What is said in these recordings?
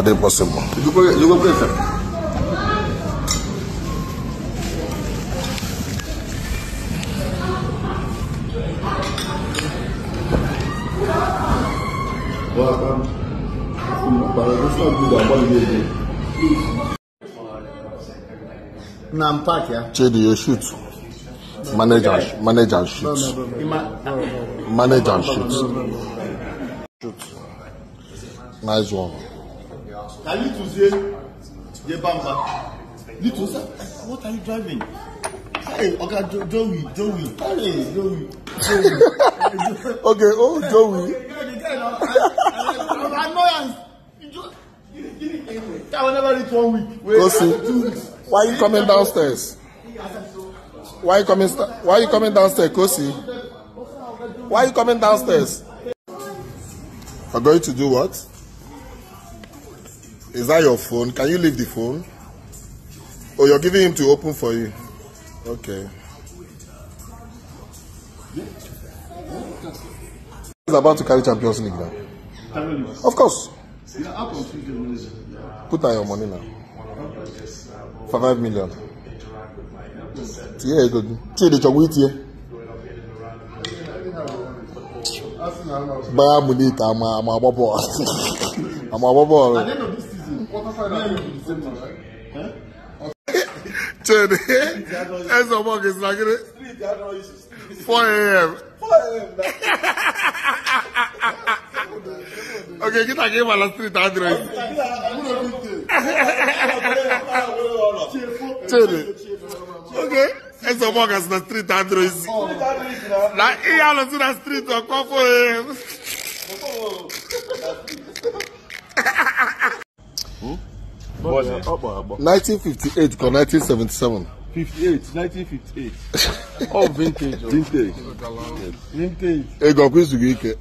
are they possible. you go you go pray for. Now I'm back, yeah. Chidi, you shoot. Manager, manager manage and shoot. No, oh, oh, oh. shoot. Shoot. Nice one ka yi tun se ye bamba ni tun sa what are you driving hey oga okay, joey joey joey joey okay oh joey. I will never reach one week. Wait, Why are you coming downstairs? Why you coming? Why you coming downstairs, Kosi? Why you coming downstairs? I'm going to do what? Is that your phone? Can you leave the phone? Oh, you're giving him to open for you. Okay. He's about to carry Champions League now. Of course. Put down your money now. For five million. Yeah, good. Chidi Chogwit here. Bayern Munich, I'm a bubble. I'm a bubble. quarter final in December, right? like it. 4 a.m. 4 a.m. okay, kita give uh, a street address. Chede. Okay. Ends of work is street address. Na iya lo si na street 4 a.m. 1958 ka 1977? 58 1958 ọ bụ vintage oh. vintage vintage ego ọkwa izu gị ike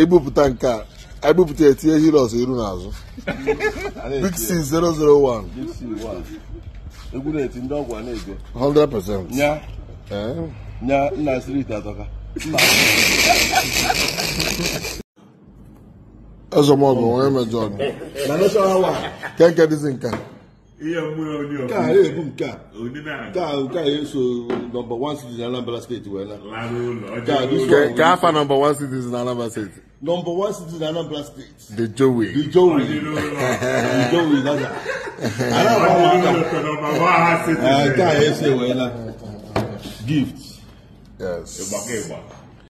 ebupụta nke a ebupụta etinye heroes iru n'azụ big 001 egwu na-eti ndị ọgwụ a na 100% nya eh? nya nna street atọka ẹsọ mọ ọgọ wọn ẹmẹjọ ọdún nana sọ wa kẹkẹ disi nka. iye mu ya oni ọkọ kaa yẹ ebu nka kaa kaa yẹ so number one citizen anambra state wẹ na kaa dis one. kaa fa number one citizen anambra state. number one city citizen anambra state. the Joey. the Joey. the jowe nana. anambra wọn kaa yẹ se wẹ na gift. yes.